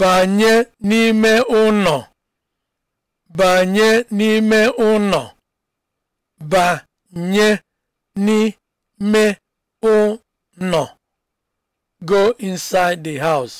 banye n'ime ụnọ banye n'ime ụnọ banye n'ime ụnọ go inside the house